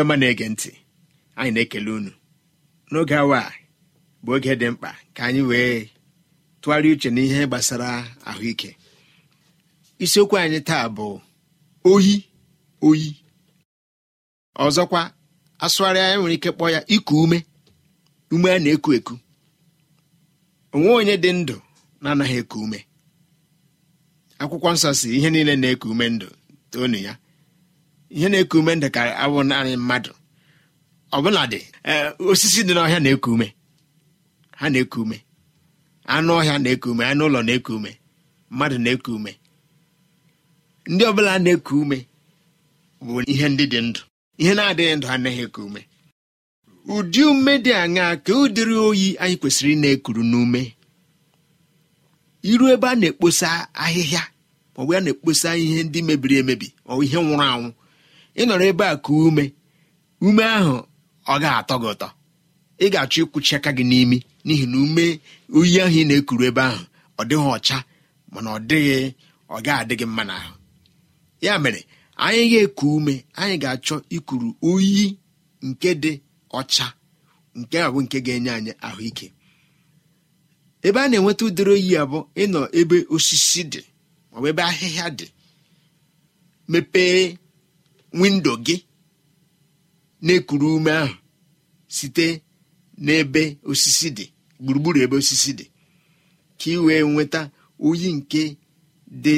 ọma na-ege ntị anyị na-ekele unu n'oge awa a bụ oge dị mkpa ka anyị wee tụgharịa uche n'ihe gbasara ahụike isiokwu anyị taa bụ oyi oyi ọzọkwa asụgharị anyị nwere ike kpọọ ya iku ume ume a na-eku eku onwe onye dị ndụ na-anaghị eku ume akwụkwọ nsọ si ihe niile na-eku ume ndụ toonu ya ihe na-eku ume ndụ karị naanị mmadụ ọbụladị e, osisi dị n'ọhịa na-eku ume ha na-eku ume anụ ọhịa na-eku ume anụ ụlọ na-eku ume mmadụ na-eku ume ndị ọbụla na-eku ume bụ ihe ndị dị ndụ ihe na-adịghị ndụ anaghị eku ume ụdị ume dị aṅaa ka ụdịrị oyi anyị kwesịrị ị na-ekuru n'ume iru ebe a na-ekposa ahịhịa maọbụ ya na-ekposa ihe ndị mebiri emebi maọbụ ihe nwụrụ anwụ ị nọrọ ebe a ka ume ume ahụ ọ ga-atọ gị ụtọ ị ga-achọ ịkwụchi aka gị n'imi n'ihi na ume oyi ahụ ị na-ekuru ebe ahụ ọ dịghị ọcha mana ọ dịghị ọ ga adịghị mma n'ahụ ya mere anyị ga-eku ume anyị ga-achọ ikuru oyi nke dị ọcha nke ahụ nke ga-enye anyị ahụike ebe a na-enweta ụdịrị oyi abụ ịnọ ebe osisi dị maọbụ ebe ahịhịa dị mepee windo gị na-ekuru ume ahụ site n'ebe osisi dị gburugburu ebe osisi dị ka ị wee nweta oyi nke dị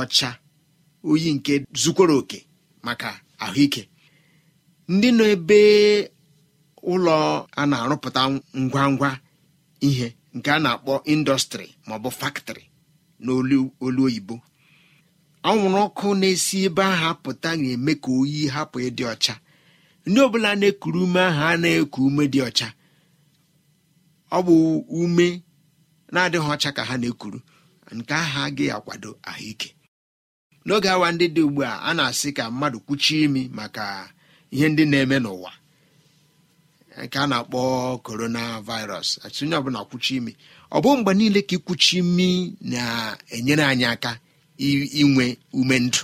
ọcha oyi nke zukwara oke maka ahụike ndị nọ ebe ụlọ a na-arụpụta ngwa ngwa ihe nke a na-akpọ indọstrị maọbụ faktrị n'olu oyibo anwụrụ ọkụ na-esi ebe ahụ pụta ga-eme ka oyi hapụ ịdị ọcha ndị ọbụla na-ekuru ume ahụ a na-eku ume dị ọcha ọ bụ ume na-adịghị ọcha ka ha na-ekuru nke ahụ agaghị akwado ahụike n'oge awa ndị dị ugbu a a na-asị ka mmadụ kwuchie imi maka ihe ndị na-eme n'ụwa nke a na-akpọ korona virus atụ onye ọbụla kwuchi imi ọ bụ mgbe niile ka ikwuchi imi na-enyere anyị aka inwe ume ndụ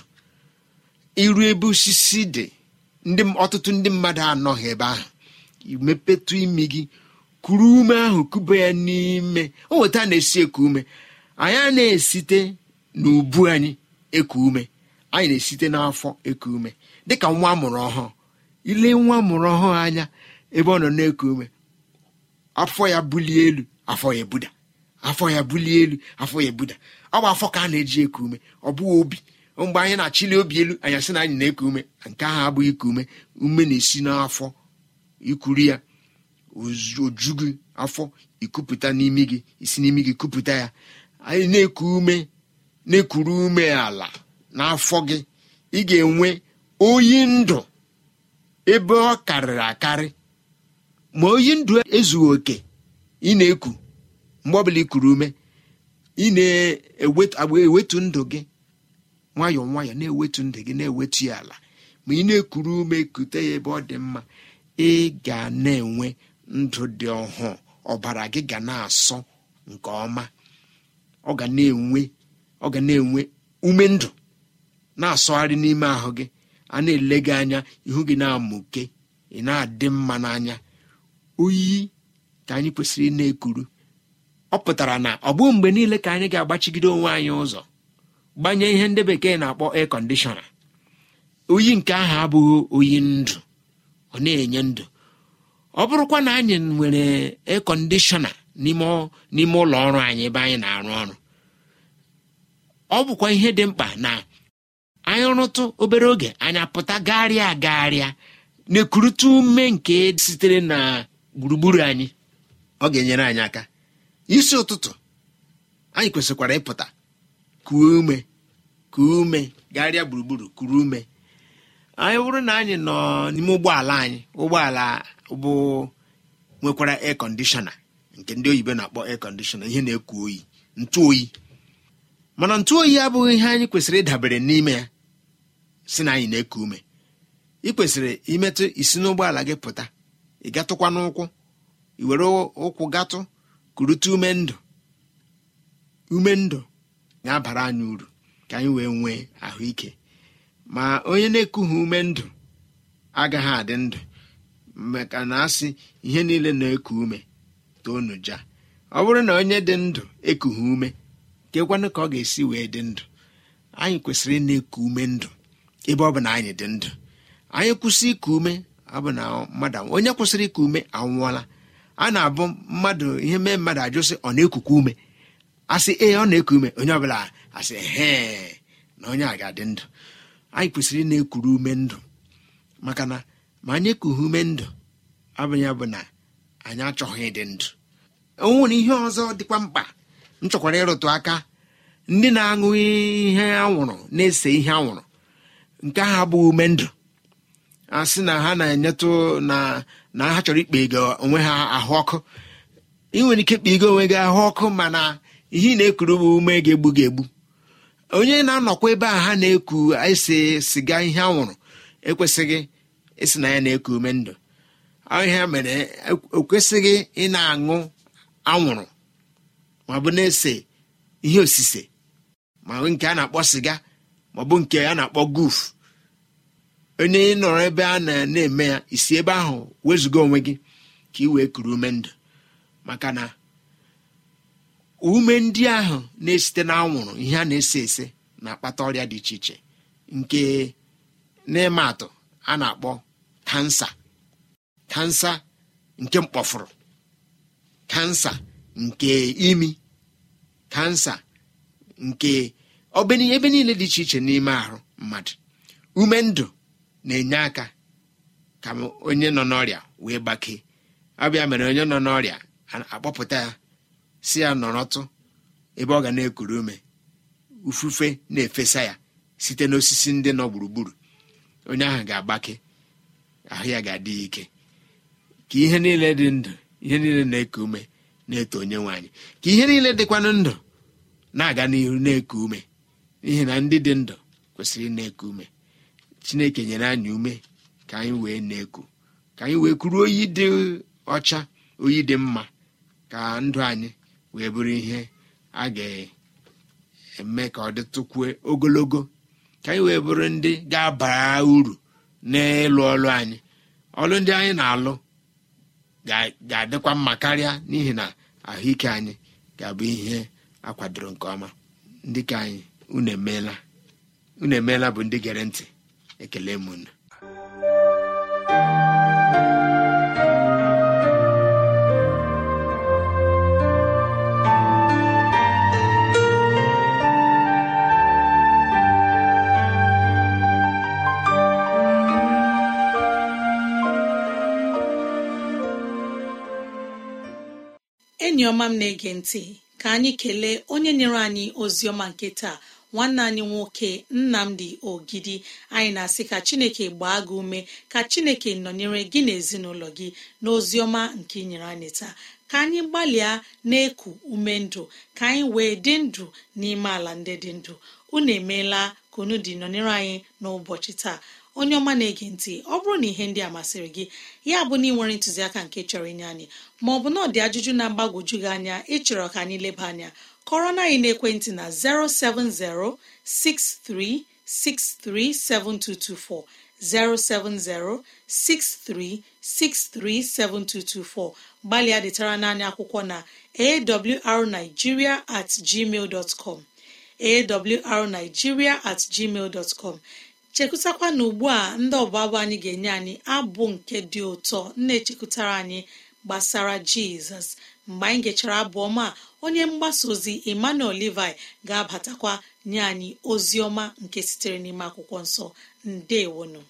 iru ebe osisi dị ọtụtụ ndị mmadụ anọghị ebe ahụ mepetụ imi gị kuru ume ahụ kube ya n'ime o na-esi eku ume anyị na-esite n'ubu anyị eku ume anyị na-esite n'afọ eku ume dịka nwa mụrụ ọhụụ ile nwa mụrụ ọhụụ anya ebe ọ nọ na-eku ume afọ ya bulie elu afọ ya ebuda afọ ya bulie elu afọ ya ebuda ọ bụ afọ ka a na-eji eku ume ọ bụghị obi mgbe anyị na-achịli obi elu anyị asị na anyị na-eku ume nke ahụ abụghị iku ume ume na-esi n'afọ ikuru ya oju gị afọ ikupụta n'imi gị isi n'imi gị kupụta ya anyị na-eku ume na-ekuru ume ala n'afọ gị ị ga-enwe oyi ndụ ebe ọ karịrị akarị ma oyi ndụ ezughị oke ị na-eku mgbe ọbụla ikuru ume ị na-ewetu ndụ gị nwayọọ nwayọọ na-ewetu ndụ gị na-ewetu ya ala ma ị na-ekuru ume kute ya ebe ọ dị mma ị ga na-enwe ndụ dị ọhụụ ọbara gị ga na-asọ nke ọma ọ ga na-enwe ọ ga na-enwe ume ndụ na-asọgharị n'ime ahụ gị a na-ele gị anya ihu gị na-amụke ị na-adị mma n'anya oyi ka anyị kwesịrị ị na-ekuru ọ pụtara na ọ bụ mgbe niile ka anyị ga-agbachigide onwe anyị ụzọ gbanye ihe ndị bekee na-akpọ ekondishọna kọndishọna oyi nke ahụ abụghị oyi ndụ ọ na-enye ndụ ọ bụrụkwa na anyị nwere air kọndishọna n'ime ụlọ ọrụ anyị ebe anyị na-arụ ọrụ ọ bụkwa ihe dị mkpa na anyị rụtụ obere oge anyị apụta gagharịa agagharịa na-ekurute ume nke sitere na gburugburu anyị ọ ga-enyere anyị aka isi ụtụtụ anyị kwesịkwara ịpụta kuo ume kuo ume gagharịa gburugburu kuru ume anyị bụrụ na anyị nọ n'ime ụgbọala anyị ụgbọala bụ nwekwara air nke ndị oyibo na-akpọ air ihe na-eku oyi ntụ oyi mana ntụ oyi abụghị ihe anyị kwesịrị ịdabere n'ime ya si na anyị na-eku ume ị kwesịrị imetụ isi n'ụgbọala gị pụta ị gatụkwa n'ụkwụ iwere were ụkwụ gatụ kurute ume ndụ ume ndụ na-abara anyị uru ka anyị wee nwee ahụike ma onye na ekughi ume ndụ agaghị adị ndụ maka na asị ihe niile na-eku ume ja ọ bụrụ na onye dị ndụ ekughị ume kekwanụ ka ọ ga-esi wee dị ndụ anyị kwesịrị na eku ume ndụ ebe ọ bụ na anyị dị ndụ anyị kwụsị iku ume ọ na mmadụ onye kwụsịrị iku ume anwụọla a na-abụ mmadụ ihe mee mmadụ ajụ sị ọ na-ekuku ume asị ee ọ na-eku ume onye ọbụla asị hee na onye a ga-adị ndụ anyị kwesịrị ị na-ekuru ume ndụ maka na ma anyị ekughị ume ndụ abụghị bụ na anyị achọghị ịdị ndụ o ihe ọzọ dịkwa mkpa m chọkwara ịrụtụ aka ndị na-aṅụ ihe anwụrụ na-ese ihe anwụrụ nke ahụ abụghị ume ndụ a sị na ha na-enyetụ na na ha chọrọ ikpe ego onwe ha ahụ ọkụ ị nwere ike ikpe ego onwe gị ahụ ọkụ mana ihe ị na-ekuru bụ ume ga-egbu gị egbu onye na-anọkwa ebe a ha na-eku ese siga ihe anwụrụ ekwesịghị ịsị na ya na-eku ume ndụ ahịa mere ekwesịghị ị na-aṅụ anwụrụ maọbụ na-ese ihe osise ma nke a na-akpọ siga maọbụ nke a na-akpọ guf onye ị nọrọ ebe a na eme ya isi ebe ahụ wezụga onwe gị ka ị wee kuru ume ndụ maka na ume ndị ahụ na-esite n'anwụrụ ihe a na-ese ese na-akpata ọrịa dị iche iche nke n'ịma atụ a na-akpọ kansa kansa nke mkpọfụrụ kansa nke imi kansa nke ebe niile dị iche iche n'ime ahụ mmadụ ume ndụ na-enye aka ka onye nọ n'ọrịa wee gbakee ọbịa mere onye nọ n'ọrịa akpọpụta ya si ya nọrọtụ ebe ọ ga na-ekuru ume ufufe na-efesa ya site n'osisi ndị nọ gburugburu onye ahụ ga-agbake ahụ ya ga-adị ike ka ihe niile dị ndụ ihe niile na-eku ume na-eto onye nwaanyị ka ihe niile dịkwanụ ndụ na-aga n'ihu na-eku ume n'ihi na ndị dị ndụ kwesịrị na-eku ume chineke nyere anyị ume ka anyị wee na-eku ka anyị wee kwuru oyi dị ọcha oyi dị mma ka ndụ anyị wee bụrụ ihe a ga-eme ka ọ dịtụkwuo ogologo ka anyị wee bụrụ ndị ga-abara uru n'ịlụ ọlụ anyị ọlụ ndị anyị na-alụ ga-adịkwa mma karịa n'ihi na ahụike anyị ga-abụ ihe akwadoro nke ọma ndị ka anyị unu emeela unu emeela bụ ndị gere ntị ekele e m enyi ọma m na-ege ntị ka anyị kelee onye nyere anyị ozi ọma nke taa nwanne anyị nwoke nnamdi ogidi anyị na-asị ka chineke gbaa gị ume ka chineke nọnyere gị na ezinụlọ gị n'oziọma nke inyere anyị taa ka anyị gbalịa na-eku ume ndụ ka anyị wee dị ndụ n'ime ala ndị dị ndụ unu emeela ka unu dị nọnyere anyị n'ụbọchị taa onye ọma na-ege ntị ọ bụrụ na ihe ndị a masịrị gị ya bụ na ị nwere ntụziaka nke chọrọ inye anyị ma ọ bụ na ọ dị ajụjụ na-agbagwoju gị anya ịchọrọ ka anyị leba anya kọrọ na anyị na 07063637224 07063637224 gbalịa detara naanị akwụkwọ na awrnigeria at gmail dot com awrnigeria at gmail dot com chekwụtakwa na ugbu a ndị ọbụabụ anyị ga-enye anyị abụ nke dị ụtọ na-echekụtara anyị gbasara jizọs mgbe anyị gechara abụ ọma onye mgbasa ozi emmanuel levi ga-abatakwa nye anyị ozi ọma nke sitere n'ime akwụkwọ nsọ ndewonu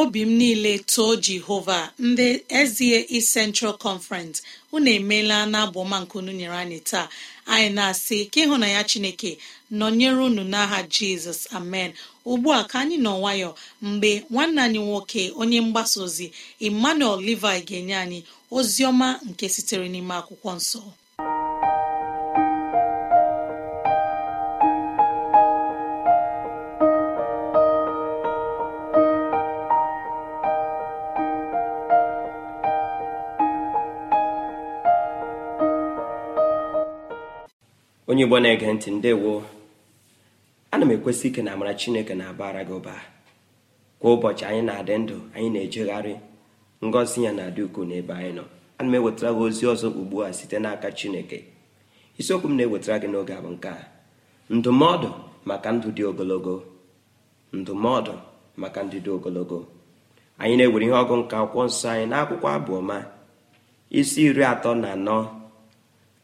obi m niile too jehova ndị ezie East Central Conference unu emeela na unu nyere anyị taa anyị na-asị ka ịhụ na ya chineke nọnyere unu n'aha jizọs amen ugbu a ka anyị nọ nwayọ mgbe nwanne anyị nwoke onye mgbasa ozi emmanuel levi ga-enye anyị ozi ọma nke sitere n'ime akwụkwọ nsọ onye igbo na-ege ntị ndewo ana m ekwesị ike na amara chineke na-abara gị ụba kwa ụbọchị anyị na-adị ndụ anyị na-ejegharị ngọzi ya na-adị ukwuu n'ebe anyị nọ ana m ewetara gị ozi ọzọ ugbu a site n'aka chineke isiokwu m na-ewetara gị n'oge a bụ nke a ndụmọdụ maka ndụ dị ogologo ndụmọdụ maka ndụ dị ogologo anyị na-ewere ihe ọgụ nke akwụkwọ nsọ anyị n'akwụkwọ abụọma isi iri atọ na anọ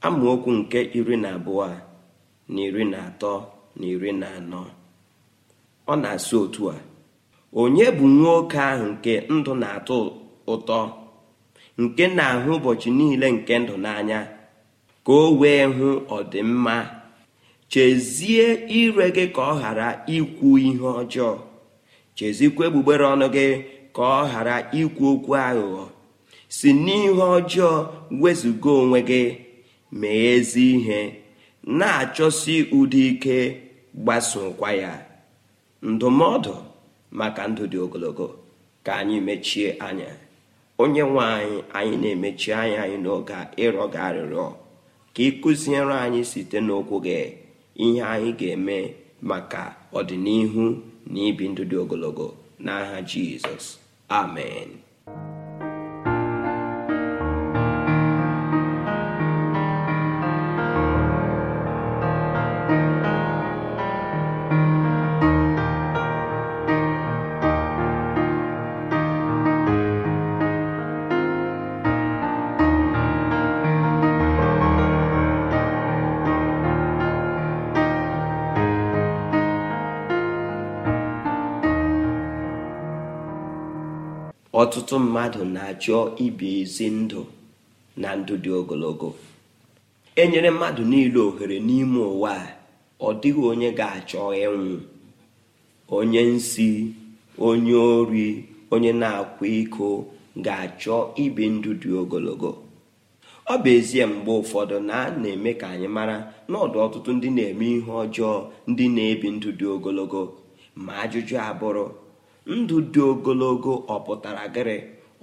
amaokwu nke iri na abụọ a na iri na atọ na iri na anọ ọ na-asị otu a onye bụ nwoke ahụ nke ndụ na-atọ ụtọ nke na-ahụ ụbọchị niile nke ndụ n'anya ka o wee hụ ọdịmma chezie ire gị ka ọ ghara ikwu ihe ọjọọ chezikwa egbugbere ọnụ gị ka ọ ghara ikwu okwu aghụghọ si n'ihe ọjọọ wezụga onwe gị mee ezi ihe na-achọsi ụdị ike gbasokwa ya ndụmọdụ maka ndụ dị ogologo ka anyị mechie anya onye nwe anyị anyị na-emechi anya anyị n'oge a ịrọ gị arịrịọ ka ị anyị site n'okwu gị ihe anyị ga-eme maka ọdịnihu na ibi ndụ dị ogologo n'aha Jizọs amen ọtụtụ mmadụ na-achọ ibi ezi ndụ na ndụ dị ogologo e nyere mmadụ niile ohere n'ime ụwa a ọ dịghị onye ga-achọ ịnwụ onye nsi onye ori onye na-akwa iko ga-achọ ibi ndụ dị ogologo ọ bụ ezie mgbe ụfọdụ na a na-eme ka anyị mara n'ọdụ ọtụtụ ndị na-eme ihe ọjọọ ndị na-ebi ndụ dị ogologo ma ajụjụ abụrụ ndụ dị ogologo ọ pụtara gịrị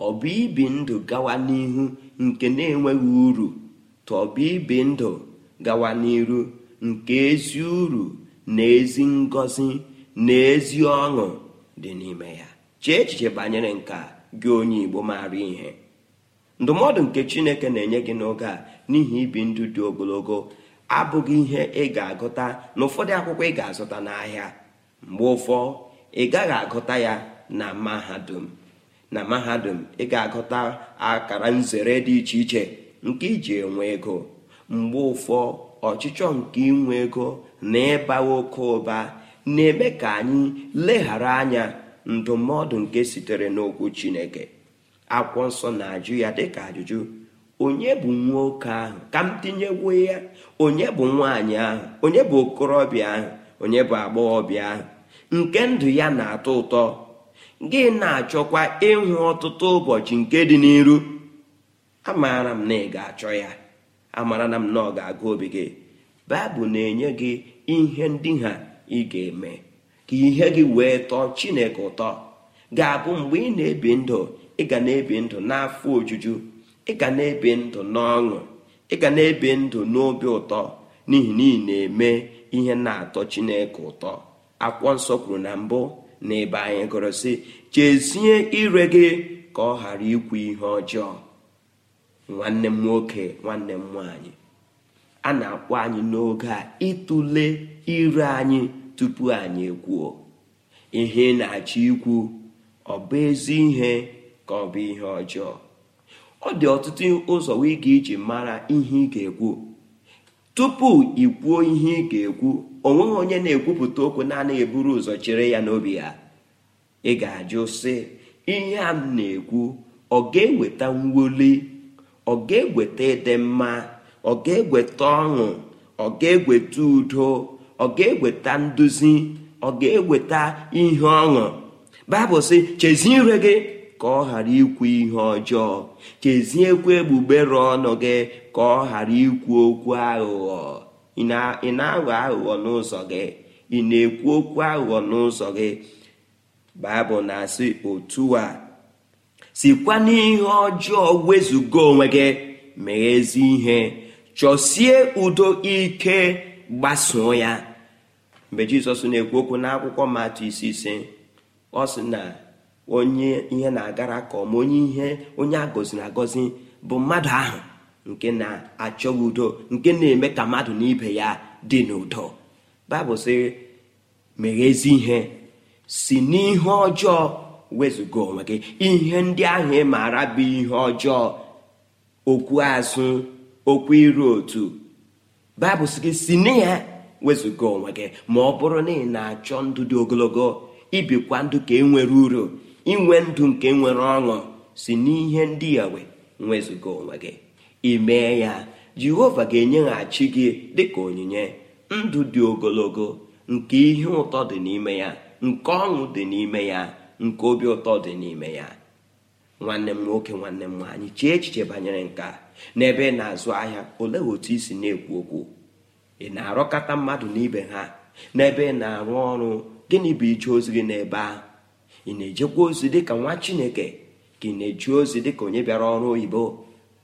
ọ bụ ibi ndụ gawa n'ihu nke na-enweghị uru tụ ibi ndụ gawa n'iru nke ezi uru na ezi ngọzi na ezi ọṅụ dị n'ime ya chee echiche banyere nke gị onye Igbo maara ihe ndụmọdụ nke Chineke na-enye gị n'oge a n'ihi ibi ndụ dị ogologo abụghị ihe ị ga-agụta na ụfọdụ akwụkwọ ị ga-azụta n'ahịa mgbe ụfọ ị gaghị agụta ya na mahadum na mahadum ị ga-agụta akara nzere dị iche iche nke iji enwe ego mgbe ụfọ ọchịchọ nke inwe ego na ịba oke ụba na-eme ka anyị leghara anya ndụmọdụ nke sitere n'okwu Chineke akwụkwọ nsọ na-ajụ ya dịka ajụjụ onye bụ nwoke ahụ ka m tinyewo ya onye bụ nwaanyị ahụ onye bụ okorobịa ahụ onye bụ agbọghọbịa ahụ nke ndụ ya na-atọ ụtọ gị na-achọkwa ịhụ ọtụtụ ụbọchị nke dị n'iru amaara m na ị ga-achọ ya amara na m na ọ ga-agụ obi gị baịbụl na-enye gị ihe ndị ha ị ga-eme ka ihe gị wee tọọ chineke ụtọ ga-abụ mgbe ị na-ebi ndụ ị ga na-ebi ndụ n'afọ ojuju ị ga na-ebi ndụ n'ọṅụ ị ga na-ebi ndụ n'obi ụtọ n'ihi na ị na-eme ihe na-atọ chineke ụtọ akwụkwọ nsọ kwuru na mbụ na ebe anyị gụrụ sị chezie ire gị ka ọ ghara ikwu ihe ọjọọ nwanne m nwoke nwanne m nwanyị a na-akpọ anyị n'oge a ịtụle ire anyị tupu anyị ekwuo ihe na-achọ ikwu ọ bụ ezi ihe ka ọ bụ ihe ọjọọ ọ dị ọtụtụ ụzọ ị iji mara ihe ị ga-ekwu tupu ị kwuo ihe ị ga-ekwu onweghị onye na-ekwupụta okwu na eburu ụzọ chere ya n'obi ya ị ga-ajụ sị ihe a m na-ekwu ọ ga-eweta mwuli ọ ga-eweta ịdị mma ọ ga-eweta ọṅụ ọ ga-eweta udo ọ ga-eweta nduzi ọ ga-eweta ihe ọṅụ baịbụl sị chezie gị ka ọ ghara ikwu ihe ọjọọ cheziekwa egbugbere ọnụ gị ka ọ ghara ikwu okwu aghụghọ ị na-aghọ aghụghọ n'ụzọ gị ị na-ekwu okwu aghụghọ n'ụzọ gị baịbụl na-asị otu a sikwa n'ihe ọjọọ wezụga onwe gị mee ihe chọsie udo ike gbasoo ya mgbe jizọs na-ekwu okwu n'akwụkwọ matụ isi ise ọ sị na onye ihe na-agara ka ọma onye ihe onye agọziri agọzi bụ mmadụ ahụ nke na-achọghị udo nke na-eme ka mmadụ na ibe ya dị n'udo baịbụl sị mere ezi ihe si n'ihe ọjọọ wezụga onwe gị ihe ndị ahụ ị maara bụ ihe ọjọọ okwu azụ okwu iru otu baịbụl sị gị si na ya wezụga onwe gị ma ọ bụrụ na ị na-achọ ndụ dị ogologo ibikwa ndụ ka e nwere uru inwe ndụ nke nwere ọṅụ si n'ihe ndị wee, wezụga onwe gị ị ya jehova ga-enyeghachi gị dịka onyinye ndụ dị ogologo nke ihe ụtọ dị n'ime ya nke ọṅụ dị n'ime ya nke obi ụtọ dị n'ime ya nwanne m nwoke nwanne m nwaanyị chee echiche banyere nke n'ebe ị na-azụ ahịa olee otu i si na-ekwu okwu ị na arụkọta mmadụ n'ibe ha n'ebe ị na-arụ ọrụ gịnị bụ ije ozi gị n'ebe a ị na-ejekwa ozi dịka nwa chineke ka ị na eji ozi dịka onye bịara ọrụ oyibo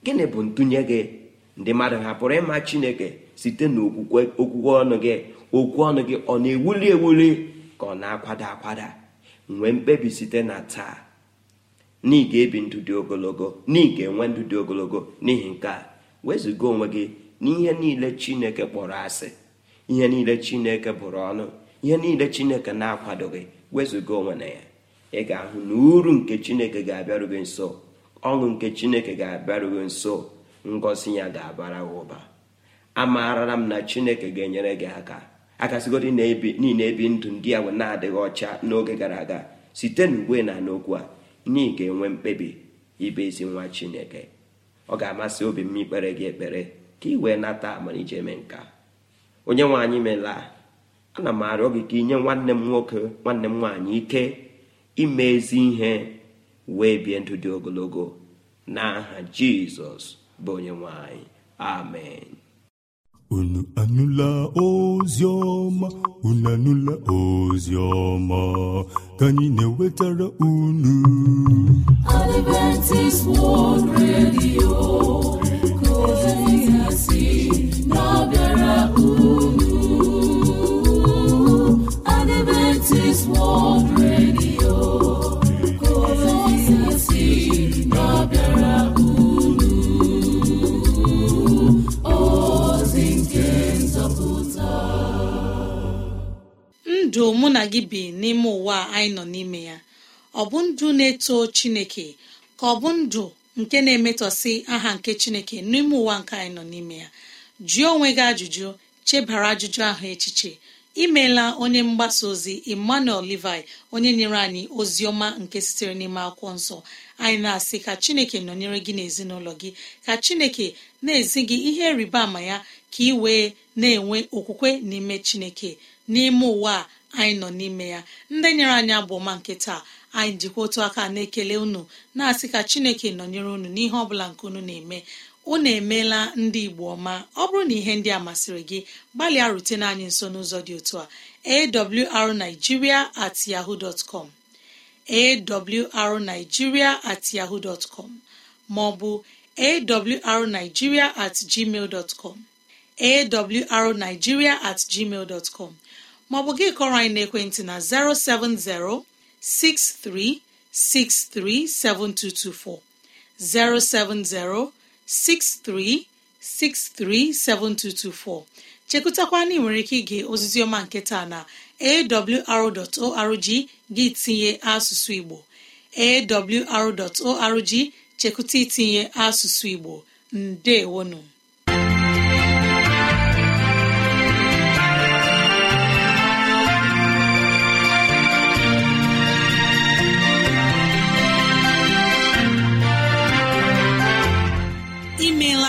gịnị bụ ntụnye gị ndị mmadụ hapụrụ ịma chineke site n'okwukwe ọnụ gị okwu ọnụ gị ọ na-ewuli ewuli ka ọ na-akwada akwada nwee mkpebi site na taa n'ige ebi ndụ dị ogologo n'ige enwe ndụ dị ogologo n'ihi nke a wezụga onwe gị n'ihe niile chineke kpọrọ asị ihe niile chineke bụrụ ọnụ ihe niile chineke na-akwadoghị wezụga onwe na ya ị ga-ahụ na uru nke chineke ga-abịaru gị nso ọṅụ nke chineke ga-abịaruo nso ngozi ya ga-abara ụba amaara m na chineke ga-enyere gị aka akasịgodi niile ebi ndụ ndị ahụ na-adịghị ọcha n'oge gara aga site n'ugbe na n'okwu a na ga-enwe mkpebi ibe ezi nwa chineke ọ ga-amasị obi m ikpere gị ekpere ka ị wee nata amalije eme nka onye nwaanyị Mela, a ana m arịọ gị ka inye nwanne m nwoke nwanne m nwaanyị ike ime ezi ihe wee bie ndụ dị ogologo n'aha jizọs bụ onye nwanyị amen unu anụla ozi ọma unu anụla ozi ọma ka anyị na-ewetara unu Adventist World Radio ka ozi si na-abịara unu Adventist World Radio ndụ mụ na gị bi n'ime ụwa anyị nọ n'ime ya ọ bụ ndụ na-eto chineke ka ọ bụ ndụ nke na emetọsi aha nke chineke n'ime ụwa nke anyị nọ n'ime ya jụọ onwe gị ajụjụ chebara ajụjụ ahụ echiche imeela onye mgbasa ozi emmanuel levi onye nyere anyị ozi ọma nke sitere n'ime akwụkwọ nsọ anyị na-asị ka chineke nọnyere gị n'ezinụlọ gị ka chineke na-ezi gị ihe rịba ama ya ka ị wee na-enwe okwukwe n'ime chineke n'ime ụwa a anyị nọ n'ime ya ndị nyere anyị abụọma nke taa anyị jikwa otu aka na-ekele unu na-asị ka chineke nọnyere unu n'ihe ọ bụla nke unu na-eme unu emeela ndị igbo ọma ọ bụrụ na ihe ndị a masịrị gị gbalịa rutena anyị nso n'ụzọ dị otu a awrnigeria at yahoo dot com at yahoo dot com maọbụ awrnigeria at gmail dot com at gmail dot com maọbụ gị kọrọ anyị n'ekwentị na 070 6363 7224 070 6363 7224 chekụtakwa na ị nwere ike ige ozizioma nke taa na awr.org gị tinye asụsụ Igbo awr.org chekụta itinye asụsụ Igbo Ndeewonu.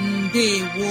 Ndewo